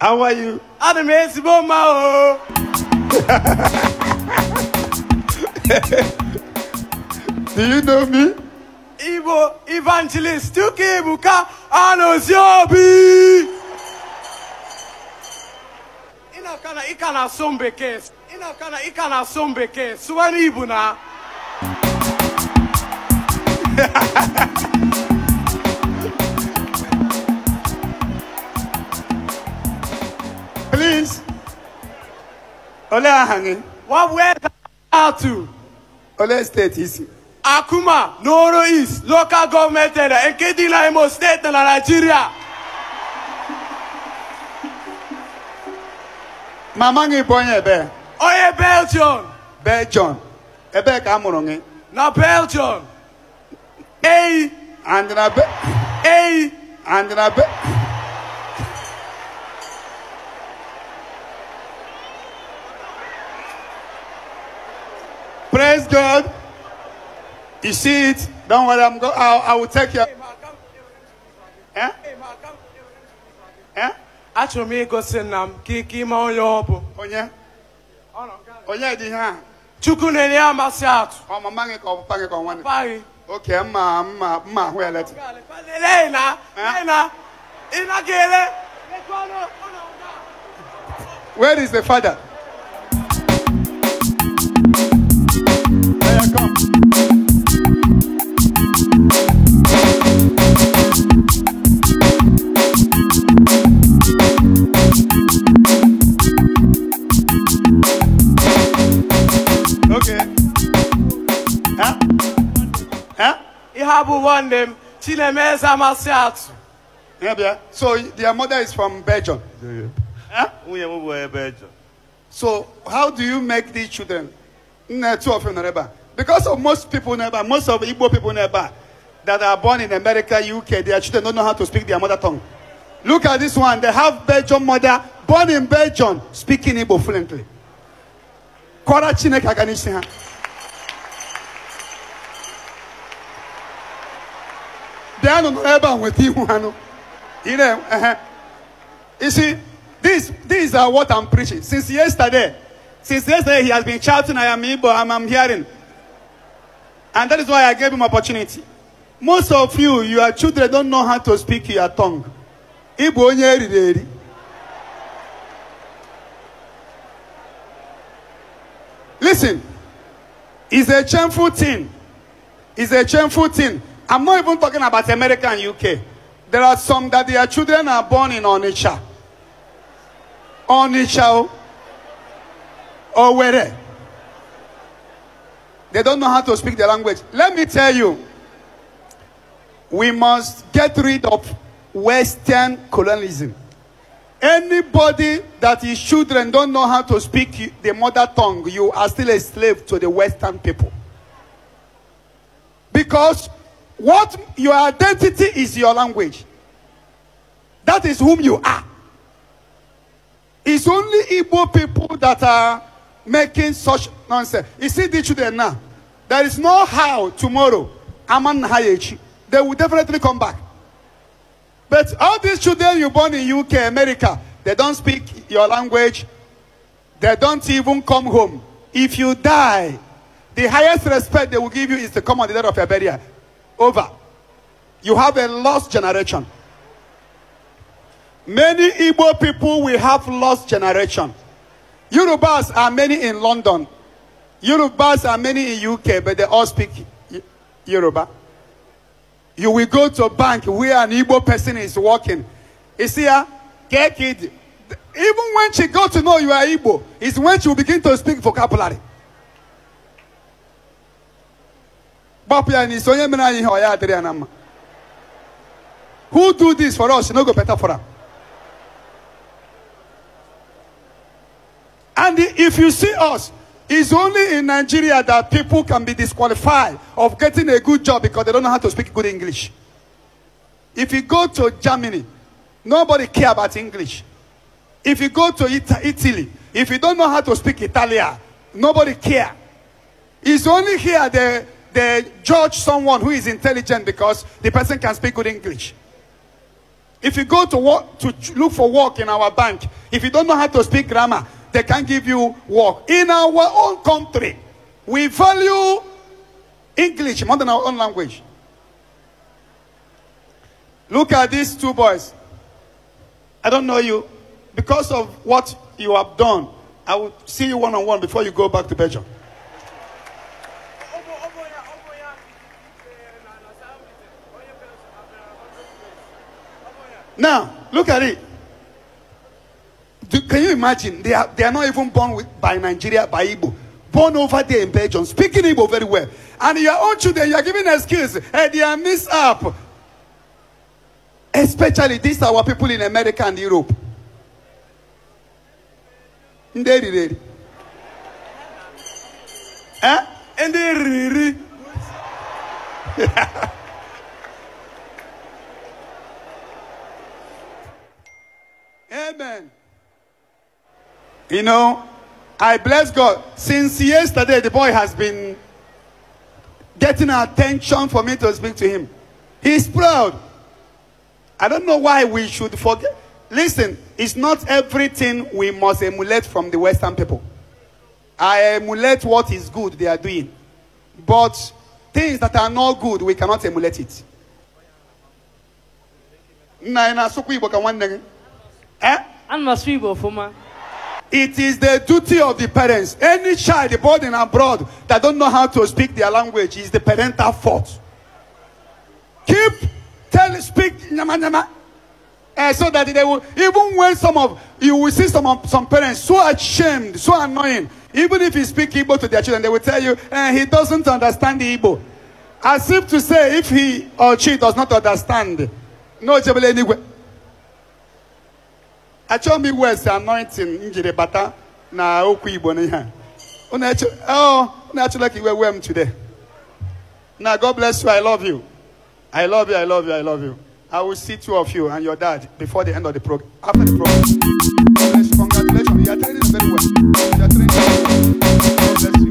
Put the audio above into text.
How are you? I'm Mesibo Mao. Do you know me? Ibo evangelist Tuki Ebuka Anosiobi. Ịnakana ị ka na-asụ bekee. Ịnakana ị ka na-asụ bekee. Sụwa n'Igbo na. Ole Ahangi. What where out to? Ole State isi. Akuma, Noro East, local government area, Nkedila Imo State na Nigeria. Mama ngi bụ onye ebe. Onye Belgium. Belgium. Ebee ka a mụrụ gị? Na Belgium. Eyi. And na be. Eyi. And na be. Praise God. You see it? Don't worry, I'm go I, I will take you. Eh? Eh? Achọrọ m igosi nna m ka ike ime onye ọ bụ. Onye? Onye dị ihe a? Chukwu na-enye amasị atụ. Ọ mama gị ka ọ papa gị ka ọ nwanne? Papa gị. Oke, mma na, eh? lee na, ị naghị Where is the father? Okay. Huh? Huh? Ihabu won them. Chinemeza Masiatu. Yeah, yeah. So their mother is from Belgium. Huh? We are Belgium. So how do you make these children? Two of them Because of most people never, most of Igbo people never that are born in America, UK, their children don't know how to speak their mother tongue. Look at this one. They have Belgian mother, born in Belgium, speaking Igbo fluently. What chineke aka n'isi ha dee nọ n'ebe a nweta ihu ha nụ na-ehe isi this these are what i'm preaching since yesterday since yesterday he has been shouting i am igbo i'm hearing and that is why i gave him opportunity most of you your children don't know how to speak your tongue igbo onye eriri eri Listen, it's a shameful thing. It's a shameful thing. I'm not even talking about America and UK. There are some that their children are born in Onitsha. Onitsha. Or oh. where? They don't know how to speak the language. Let me tell you, we must get rid of Western colonialism. Anybody that is children don't know how to speak the mother tongue, you are still a slave to the Western people. Because what your identity is your language. That is whom you are. It's only Igbo people that are making such nonsense. You see the children now. There is no how tomorrow. Aman They will definitely come back. But all these children you born in UK, America, they don't speak your language. They don't even come home. If you die, the highest respect they will give you is to come on the day of your burial. Over. You have a lost generation. Many Igbo people will have lost generation. Yorubas are many in London. Yorubas are many in UK, but they all speak Yoruba. You will go to a bank where an Igbo person is working. You see her? Ah, get kid. Even when she got to know you are Igbo, is when she will begin to speak vocabulary. gbapụ ya who do this for us no go better for am and if you see us it's only in Nigeria that people can be disqualified of getting a good job because they don't know how to speak good English. If you go to Germany, nobody care about English. If you go to Italy, if you don't know how to speak Italian, nobody care. It's only here they, they judge someone who is intelligent because the person can speak good English. If you go to, work, to look for work in our bank, if you don't know how to speak grammar, they can't give you work. In our own country, we value English more than our own language. Look at these two boys. I don't know you. Because of what you have done, I will see you one on one before you go back to Belgium. Now, look at it. Do, can you imagine? They are, they are not even born with, by Nigeria, by Igbo. Born over there in Belgium, speaking Igbo very well. And your own children, you are giving excuse. Hey, eh, they are missed up. Especially these are our people in America and Europe. Nderi, nderi. Eh? Nderi. Amen. You know, I bless God. Since yesterday, the boy has been getting attention for me to speak to him. He's proud. I don't know why we should forget. Listen, it's not everything we must emulate from the Western people. I emulate what is good they are doing. But things that are not good, we cannot emulate it. Eh? It is the duty of the parents. Any child born in abroad that don't know how to speak their language is the parental fault. Keep tell speak nyama nyama. Uh, so that they will even when some of you will see some of, some parents so ashamed, so annoying, even if you speak Igbo to their children, they will tell you eh, he doesn't understand the Igbo. As if to say if he or she does not understand, no anyway. achọ m iwu esi anointing m jiri bata na okwu igbo n'ihe oh, unu achọla ka iwe wee m today na god bless you i love you i love you i love you i love you i will see two of you and your dad before the end of the program after the program congratulations you are training very well you are training very well god bless you